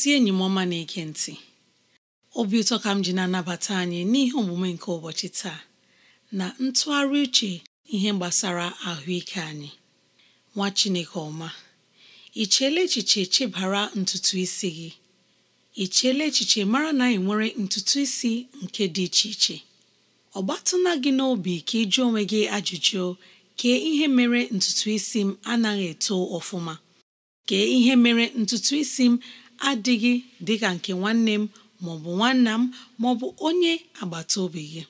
ezi enyi m ọma na-ege ntị obi ụtọ ka m ji na-anabata anyị n'ihe omume nke ụbọchị taa na ntụgharị uche ihe gbasara ahụike anyị nwa Chineke ọma ị cheela echiche chebara ntutu isi gị ị cheela echiche mara na ị nwere ntutu isi nke dị iche iche ọ gbatụna gị n'obi ka ị jụọ onwe gị ajụjụ kee ihe mere ntutu isi m anaghị eto ọfụma kee ihe mere ntutu isi m adịghị dịka nke nwanne m maọbụ nwanna m maọbụ onye agbata obi gị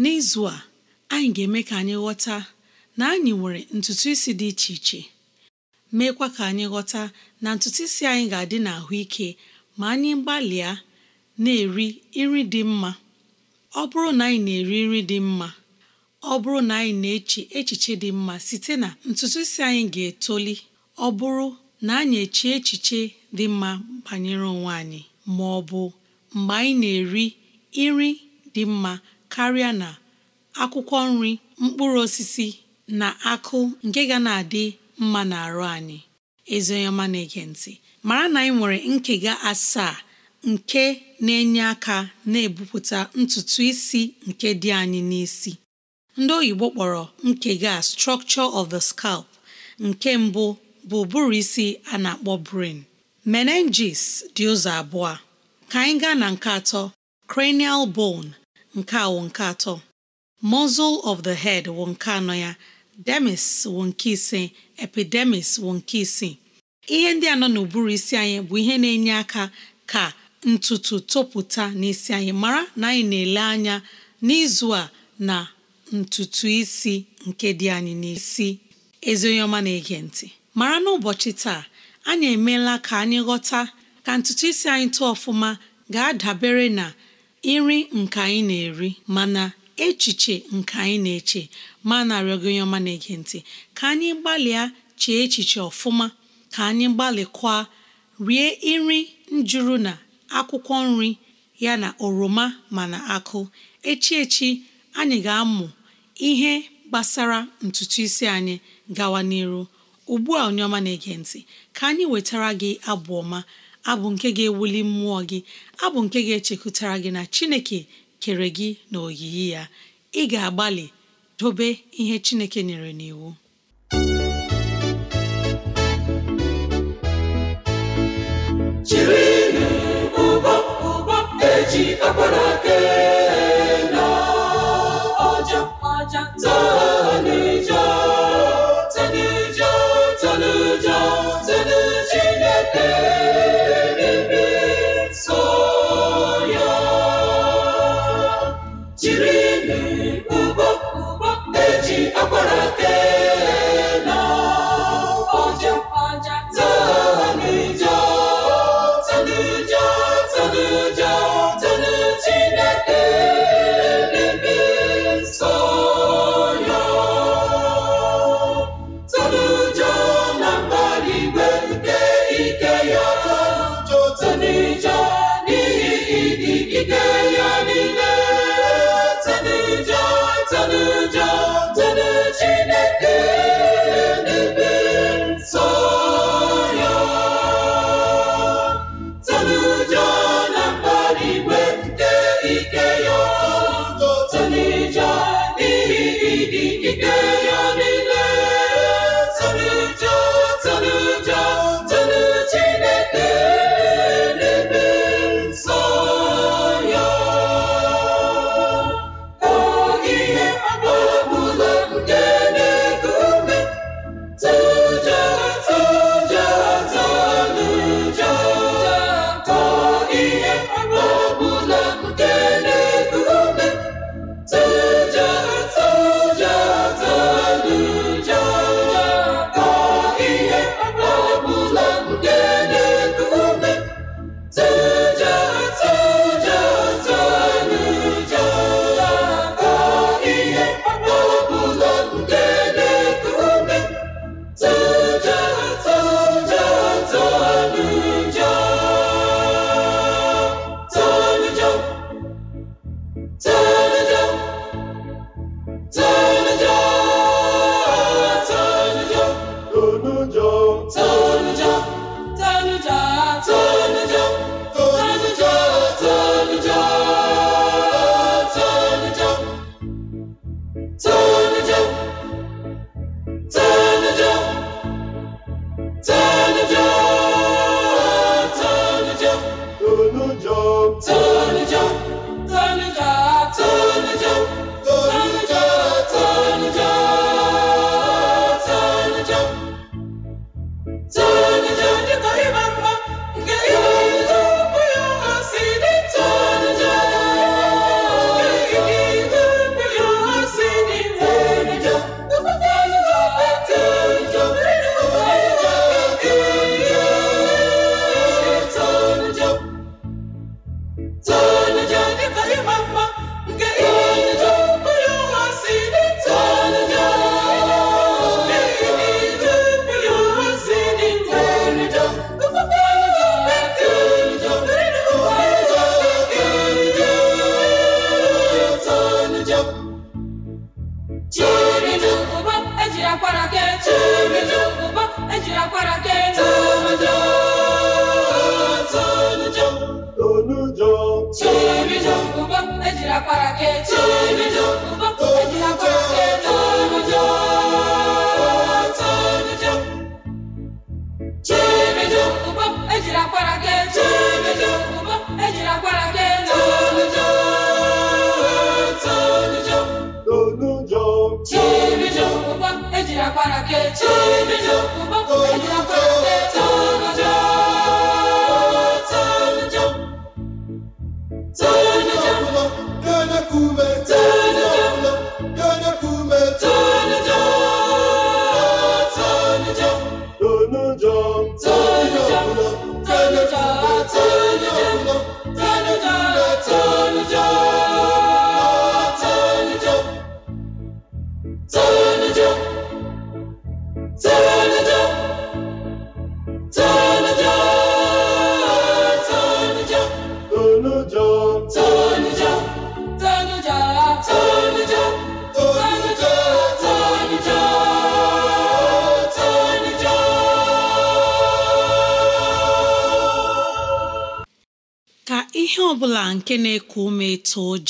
n'izu a anyị ga-eme ka anyị ghọta na anyị nwere ntutu isi dị iche iche meekwa ka anyị ghọta na ntutu isi anyị ga-adị ahụike ma anyị gbalịa na-eri nri dị mma ọ bụrụ na anyị na-eri nri dị mma ọ bụrụ na anyị na-eche echiche dị mma site na ntutu isi anyị ga-etoli ọ bụrụ na anyị echie echiche dị mma banyere onwe anyị ma ọ bụ mgbe anyị na-eri nri dị mma karịa na akwụkwọ nri mkpụrụ osisi na akụ nke ga na-adị mma na arụ anyị ezi na-ege ntị mara na anyị nwere nkega asaa nke na-enye aka na-ebupụta ntutu isi nke dị anyị n'isi ndị oyibo kpọrọ nkega structure of the scalp nke mbụ bụ ụbụrụ isi a na-akpọ brain menenges dị ụzọ abụọ ka anyị gaa na nke atọ cranial bone nke wụ nke atọ muscle of the head wụ nke anọ ya demis wụ nke ise epidemis wụ nke isii ihe ndị anọ n'uburu n'ụbụrụ isi anyị bụ ihe na-enye aka ka ntutu topụta n'isi anyị mara na anyị na-ele anya n'izu a na ntutu isi nke dị anyị n'isi ezi onye ọma na-ege ntị mara n'ụbọchị taa anyị emeela ka anyị ghọta ka ntutu isi anyị tụọ ọfụma ga-adabere na nri nke anyị na-eri mana echiche nke anyị na-eche ma narịọ gị onye ọma na-ege ntị ka anyị gbalịa chee echiche ọfụma ka anyị gbalịkwa rie nri njuru na akwụkwọ nri ya na oroma mana akụ echi echi anyị ga-amụ ihe gbasara ntutu isi anyị gawa n'iru ugbu a onye ọma na-ege ntị ka anyị wetara gị abụ ọma abụ nke ga-ewuli mmụọ gị abụ nke ga-echekwutara gị na Chineke kere gị na oyiyi ya ị ga-agbalị dobe ihe Chineke nyere n'iwu jiri ụgbọ ụgbọ eji akwara Goiânia.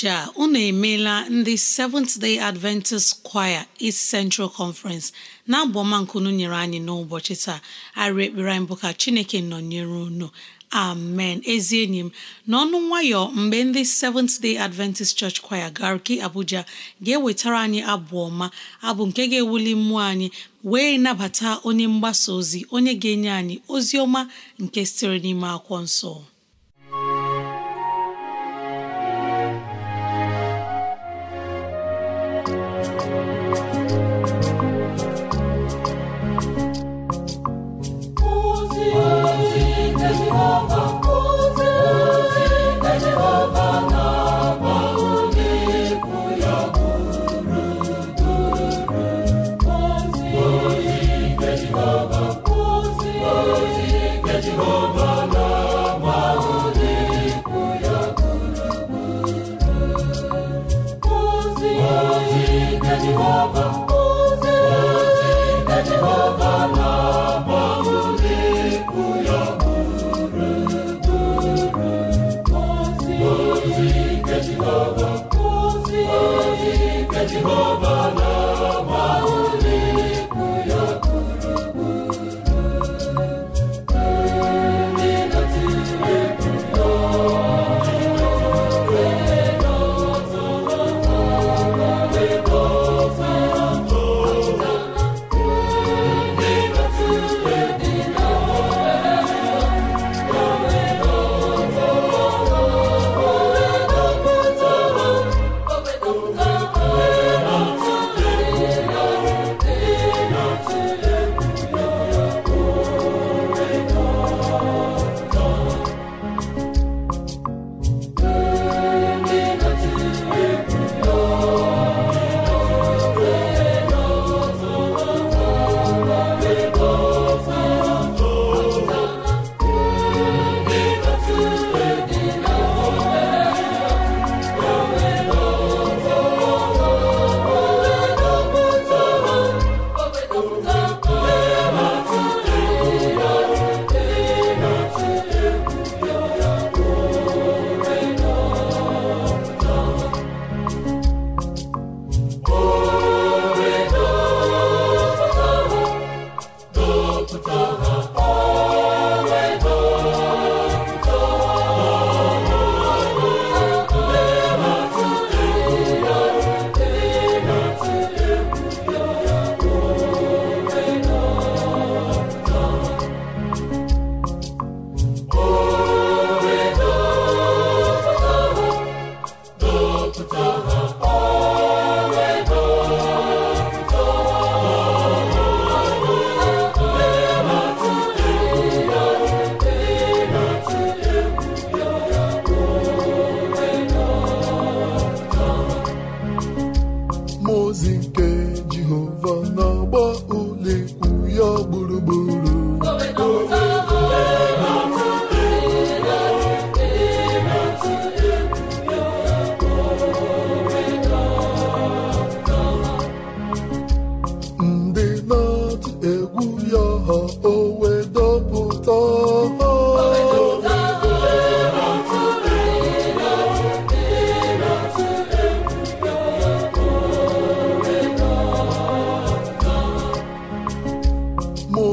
ụbọchị a unu emeela ndị Seventh Day Adventist Choir East Central Conference na-abụ nkunu nyere anyị n'ụbọchị taa arị ekpere anyị bụ ka Chineke nọnyere unu amen ezi enyi m n'ọnụ nwayọ mgbe ndị Seventh Day Adventist Church Choir Garki Abuja ga-ewetara anyị abụ ọma abụ nke ga-ewuli mmụọ anyị wee nabata onye mgbasa ozi onye ga-enye anyị ozi ọma nke sitere n'ime akwụkwọ nsọ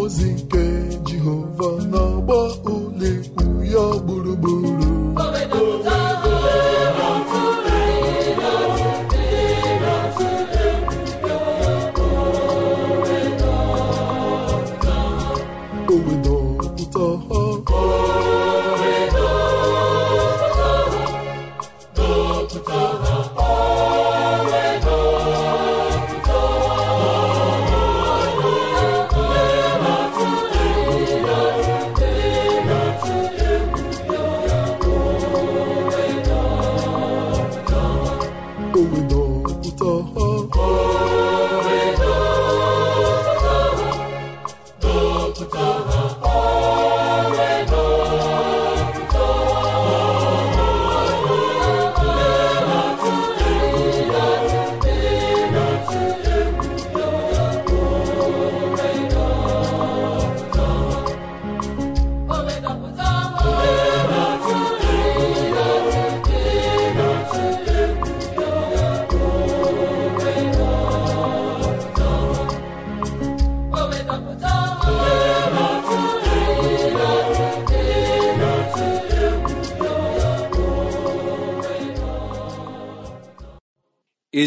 ozi nke Jehova n'ọgbọ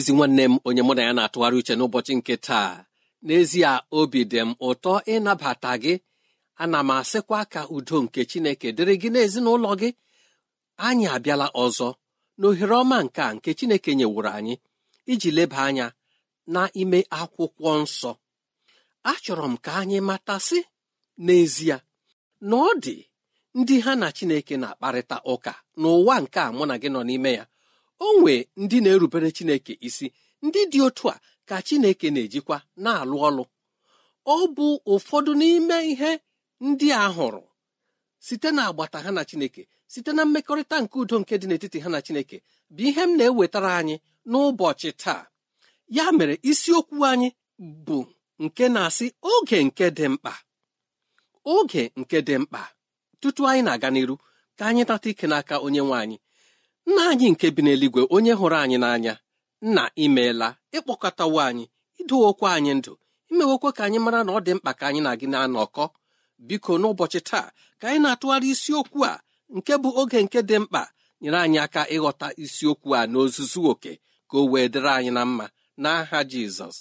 ezi nwanne m onye mụ na ya na-atụgharị uche n'ụbọchị nke taa n'ezie obi dị m ụtọ ịnabata gị ana m asịkwa ka udo nke chineke dịrị gị n'ezinụlọ gị anyị abịala ọzọ na ohere ọma nke a nke chineke nyewuru anyị iji leba anya n'ime akwụkwọ nsọ achọrọ m ka anyị matasị n'ezie na ọ dị ndị ha na chineke na-akparịta ụka n'ụwa nke a mụ na gị nọ n'ime ya o nwee ndị na-erubere Chineke isi ndị dị otu a ka Chineke na-ejikwa na-alụ ọlụ ọ bụ ụfọdụ n'ime ihe ndị a hụrụ site na agbata ha na Chineke site na mmekọrịta nke udo nke dị n'etiti ha na Chineke bụ ihe m na-ewetara anyị n'ụbọchị taa ya mere isiokwu anyị bụ nke na-asị oge nke dị mkpa oge nke dị mkpa tutu anyị na-aga n'iru ka anyị nata ike n'aka onye nwe anyị nna anyị nke bi n'eluigwe onye hụrụ anyị n'anya nna imeela ịkpọkọtawo anyị idowokwa anyị ndụ imewokwa ka anyị mara na ọ dị mkpa ka anyị na gị na-anọkọ biko n'ụbọchị taa ka anyị na-atụgharị isiokwu a nke bụ oge nke dị mkpa nyere anyị aka ịghọta isiokwu a n'ozuzu oke ka o wee dịrị anyị na mma n'aha jizọs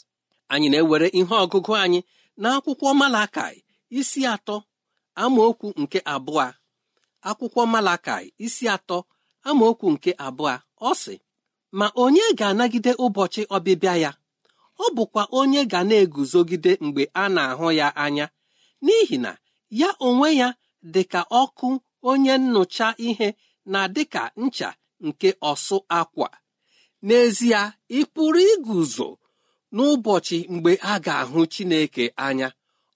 anyị na-ewere ihe ọgụgụ anyị na akwụkwọ malakai isi atọ amaokwu nke abụọ akwụkwọ malakai isi atọ amaokwu nke abụọ ọ sị ma onye ga-anagide ụbọchị ọbịbịa ya ọ bụkwa onye ga na-eguzogide mgbe a na-ahụ ya anya n'ihi na ya onwe ya dị ka ọkụ onye nnụcha ihe na ka ncha nke ọsụ akwa n'ezie ị pụrụ iguzo n'ụbọchị mgbe a ga-ahụ Chineke anya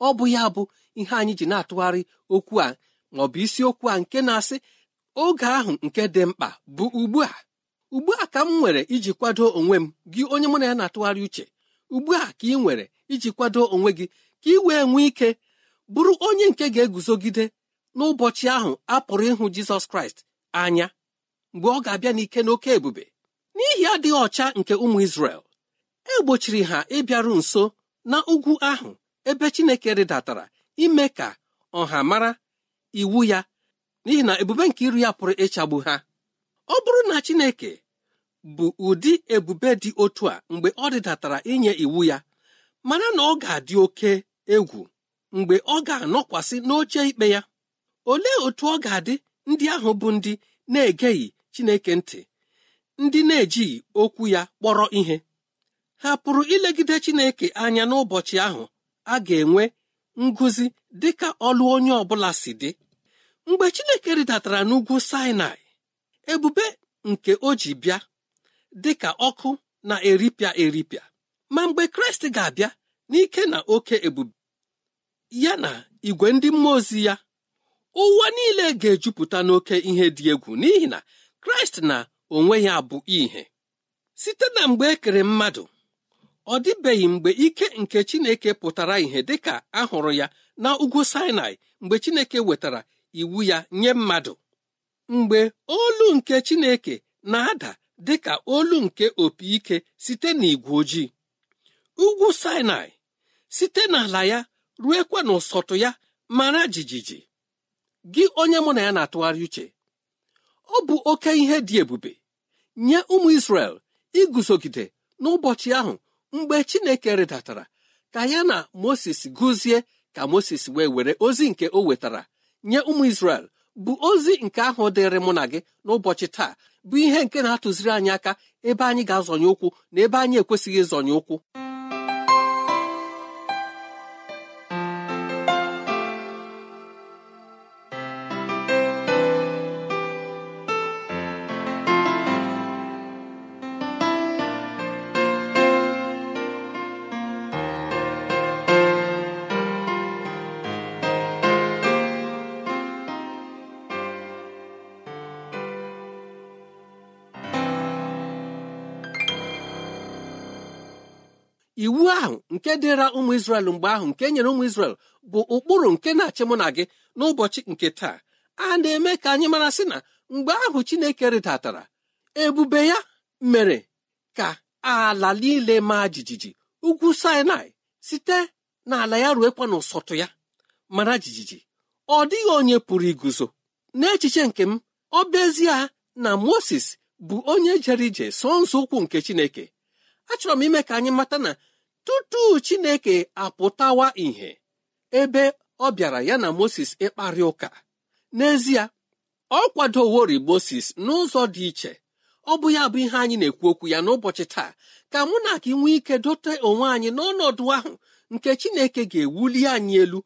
ọ bụ ya bụ ihe anyị ji na-atụgharị okwu a ma bụ isiokwu a nke na-asị oge ahụ nke dị mkpa bụ ugbu a ugbu a ka m nwere iji kwado onwe m gị onye mụ na ya na-atụgharị uche ugbu a ka ị nwere iji kwado onwe gị ka ị wee nwee ike bụrụ onye nke ga-eguzogide n'ụbọchị ahụ a pụrụ ịhụ Jizọs Kraịst anya mgbe ọ ga-abịa n'ike n'oke ebube n'ihi adịghị ọcha nke ụmụ Izrel egbochiri ha ịbịaru nso na ugwu ahụ ebe Chineke rịdatara ime ka ọha mara iwu ya n'ihi na ebube nke iru ya pụrụ ịchagbu ha ọ bụrụ na Chineke bụ ụdị ebube dị otu a mgbe ọ dịdatara inye iwu ya mana na ọ ga-adị oke egwu mgbe ọ ga-anọkwasị n'oche ikpe ya olee otu ọ ga-adị ndị ahụ bụ ndị na-egeghị Chineke ntị ndị na-ejighị okwu ya kpọrọ ihe ha pụrụ ilegide Chineke anya n'ụbọchị ahụ a ga-enwe ngụzi dịka ọlụ onye ọ bụla si dị mgbe chineke rịdatara n'ugwu sinai ebube nke o ji bịa dị ka ọkụ na eripịa eripịa ma mgbe kraịst ga-abịa n'ike na oke ebube ya na igwe ndị mmụọ ozi ya ụwa niile ga-ejupụta n'oke ihe dị egwu n'ihi na kraịst na onwe ya bụ ihe site na mgbe ekere mmadụ ọ dịbeghị mgbe ike nke chineke pụtara ìhè dịka a hụrụ ya na ugwu sinai mgbe chineke wetara iwu ya nye mmadụ mgbe olu nke Chineke na-ada dị ka olu nke opi ike site n'igwe ojii ugwu Sinai site n'ala ya ruekwa n'ụsọtụ ya mara jijiji gị onye mụ na ya na-atụgharị uche ọ bụ oke ihe dị ebube nye ụmụ Israel iguzogide n'ụbọchị ahụ mgbe Chineke rịdatara ka ya na Moses gụzie ka Moses wee were ozi nke o wetara nye ụmụ isrel bụ ozi nke ahụ dịrị mụ na gị n'ụbọchị taa bụ ihe nke na-atụziri anyị aka ebe anyị ga-azọnye ụkwụ na ebe anyị ekwesịghị ịzọnye ụkwụ nke dịra ụmụ Izrel mgbe ahụ nke nyere ụmụ Izrel bụ ụkpụrụ nke na-achị mụ na gị n'ụbọchị nke taa a na-eme ka anyị mara sị na mgbe ahụ Chineke rịdatara ebube ya mere ka ala niile maa jijiji ugwu Sinai site n'ala ya ruekwa n'ụsọtụ ya mara jijiji ọ dịghị onye pụrụ iguzo n'echiche nke m ọ ezie na Moses bụ onye jere ije so nzọ ụkwụ nke Chineke achọrọ m ime ka anyị mata na tutu chineke apụtawa ìhè ebe ọ bịara ya na moses ịkparị ụka n'ezie ọ kwadowori moses n'ụzọ dị iche ọ bụ ya bụ ihe anyị na-ekwu okwu ya n'ụbọchị taa ka mụ na gị nwee ike dote onwe anyị n'ọnọdụ ahụ nke chineke ga-ewuli anyị elu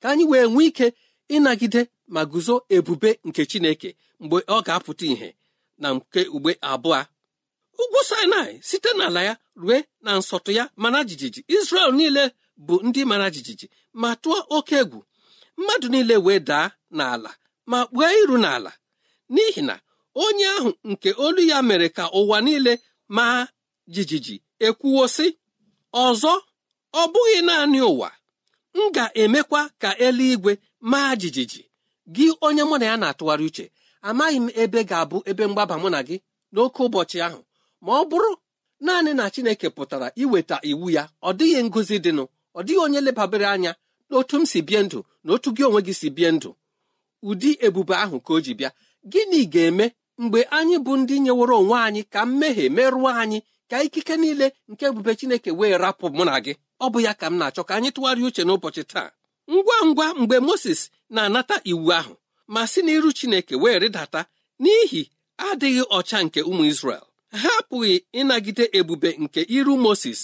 ka anyị wee nwee ike ịnagide ma guzo ebube nke chineke mgbe ọ ga-apụta ìhè na nke ugbe abụọ ugwu sinai site n'ala ya rue na nsọtụ ya mana jijiji Izrel niile bụ ndị mara jijiji ma tụọ oke egwu mmadụ niile wee daa n'ala ma kpuo iru n'ala n'ihi na onye ahụ nke olu ya mere ka ụwa niile maa jijiji ekwuwo sị ọzọ ọ bụghị naanị ụwa m ga-emekwa ka eluigwe maa jijiji gị onye mụ na ya na-atụgharị uche amaghị m ebe ga-abụ ebe mgbaba mụ na gị n'oke ụbọchị ahụ ma ọ bụrụ naanị na Chineke pụtara iweta iwu ya ọ dịghị ngozi dịnụ ọ dịghị onye lebabere anya n'otu m si bie ndụ na otu gị onwe gị si bie ndụ ụdị ebube ahụ ka o ji bịa gịnị ga-eme mgbe anyị bụ ndị nyeworo onwe anyị ka mmehie merụọ anyị ka ikike niile nke ebube Chineke wee rapụ mụ na gị ọ bụ ya ka m na-achọ ka anyị tụgharịa uche n'ụbọchị taa ngwa ngwa mgbe Moses na-anata iwu ahụ ma si n'iru Chineke wee rịdata n'ihi adịghị ọcha nke ụmụ isrel ha apụghị ịnagide ebube nke iru Moses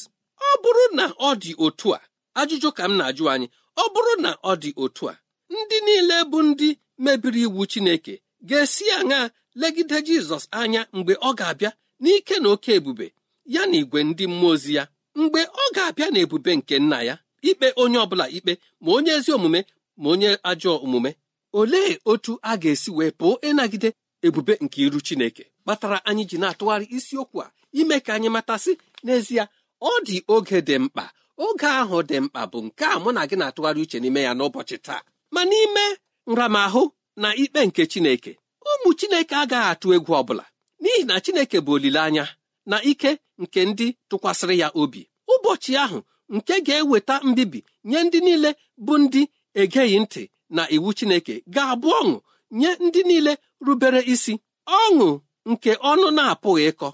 ọ bụrụ na ọ dị otu a ajụjụ ka m na-ajụ anyị ọ bụrụ na ọ dị otu a ndị niile bụ ndị mebiri iwu Chineke ga-esi aṅa legide Jizọs anya mgbe ọ ga-abịa n'ike na oke ebube ya na igwe ndị mmụọ ozi ya mgbe ọ ga-abịa na ebube nke nna ya ikpe onye ọbụla ikpe ma onye ezi omume ma onye ajọ omume olee otu a ga-esi wee pụọ ịnagide ebube nke iru Chineke kpatara anyị ji na-atụgharị isiokwu a ime ka anyị matasị n'ezie ọ dị oge dị mkpa oge ahụ dị mkpa bụ nke a mụ na gị na-atụgharị uche n'ime ya n'ụbọchị taa ma n'ime nramahụ na ikpe nke Chineke ụmụ Chineke agaghị atụ egwu ọbụla n'ihi na Chineke bụ olileanya na ike nke ndị tụkwasịrị ya obi ụbọchị ahụ nke ga-eweta mbibi nye ndị niile bụ ndị egeghị ntị na iwu Chineke ga-abụ ọṅụ nye ndị niile rubere isi ọṅụ nke ọnụ na-apụghị ịkọ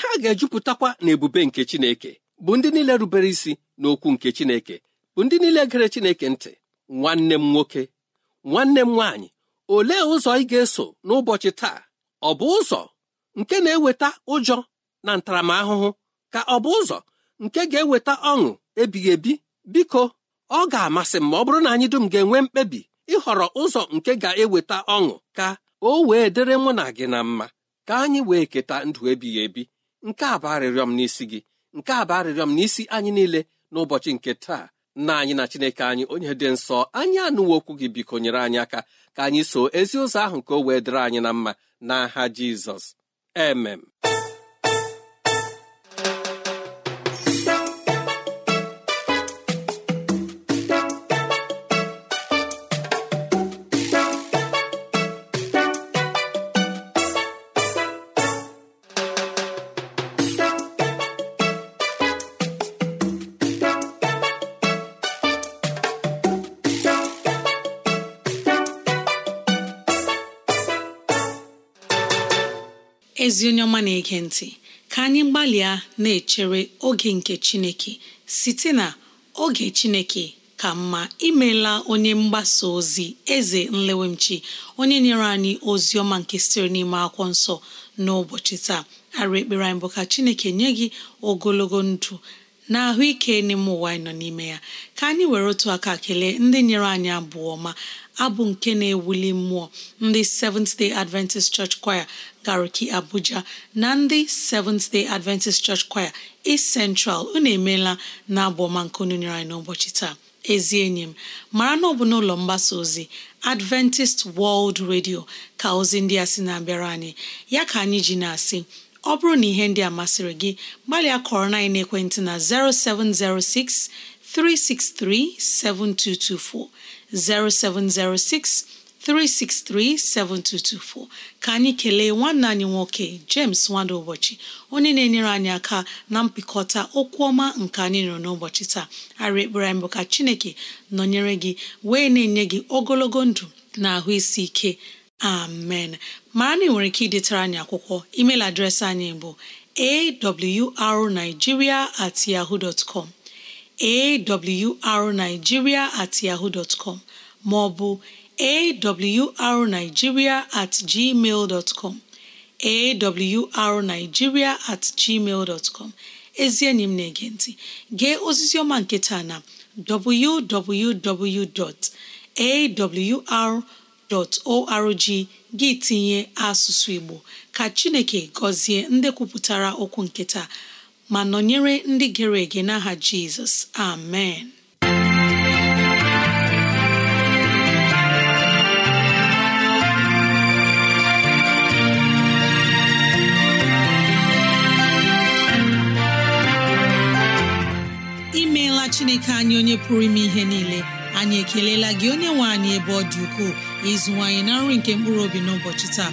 ha ga-ejupụtakwa n'ebube nke Chineke bụ ndị niile rubere isi n'okwu nke Chineke bụ ndị niile gere Chineke ntị nwanne m nwoke nwanne m nwaanyị olee ụzọ ị ga-eso n'ụbọchị taa ọ bụ ụzọ nke na-eweta ụjọ na ntaramahụhụ ka ọ bụ ụzọ nke ga-eweta ọṅụ ebighị ebi biko ọ ga-amasị m ma ọ bụrụ na anyị dum ga-enwe mkpebi ịhọrọ ụzọ nke ga-eweta ọṅụ ka o wee dịrị mụ na gị na mma ka anyị wee keta ndụ ebighị ebi nke a bụ arịrịọ m n'isi gị nke a bụ arịrịọ m n'isi anyị niile n'ụbọchị nke taa nna anyị na chineke anyị onye dị nsọ anyị anụwo okwu gị biko nyere anyị aka ka anyị so ezi ụzọ ahụ ka o wee dịrị anyị na mma n'aha jizọs emem ezi onye ọma na-ege ntị ka anyị gbalịa na-echere oge nke Chineke site na oge Chineke ka mma imela onye mgbasa ozi eze nlewemchi onye nyere anyị ozi ọma nke siri n'ime akwụkwọ nsọ n'ụbọchị taa arụ ekpere anyị bụ ka Chineke nye gị ogologo ndụ na ahụike n'ime ụwa anyị nọ n'ime ya ka anyị were otu aka kelee ndị nyere anyị abụọ ọma abụ nke na-ewuli mmụọ ndị Seventh Day Adventist Church Choir Gariki Abuja na ndị Seventh Day Adventist Church Choir East Central unu emeela na abụ ọma nke unu nyere anyị n'ụbọchị taa ezi enyi m mara na ọ bụ n'ụlọ mgbasa ozi Adventist World Radio ka ozi ndị a sị na-abịara anyị ya ka anyị ji na-asị ọ bụrụ na ihe ndị a masịrị gị gbalịa kọrọ na ekwentị na 0706 363 7224 0706 7224 ka anyị kelee nwanne anyị nwoke James Nwada ụbọchị onye na-enyere anyị aka na mpịkọta okwu ọma nke anyị nụrụ n'ụbọchị taa arị ekpere anyị bụ ka Chineke nọnyere gị wee na-enye gị ogologo ndụ na ahụ isi ike amen Ma na nwere ike idetara anyị akwụkwọ email adreesị anyị bụ awrnigeria at yahoo dot awrnigeria at yahoo dot com maọbụ awrnigeria at gmail com awrnigeria at gmail com ezi enyi m na-ege ntị gee osisi ọma nke taa na www.awr.org gị tinye asụsụ Igbo ka Chineke gọzie ndị kwupụtara okwu nketa. ma nọnyere ndị gere ege n'aha jizọs amen imeela chineke anyị onye pụrụ ime ihe niile anyị ekelela gị onye nwe anyị ebe ọ dị ukwuu ịzụwanyị na nri nke mkpụrụ obi n'ụbọchị taa